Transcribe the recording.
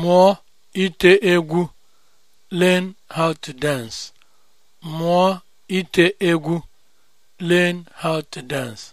mụọ ite egwu learn how to dance mụọ ite egwu learn how to dance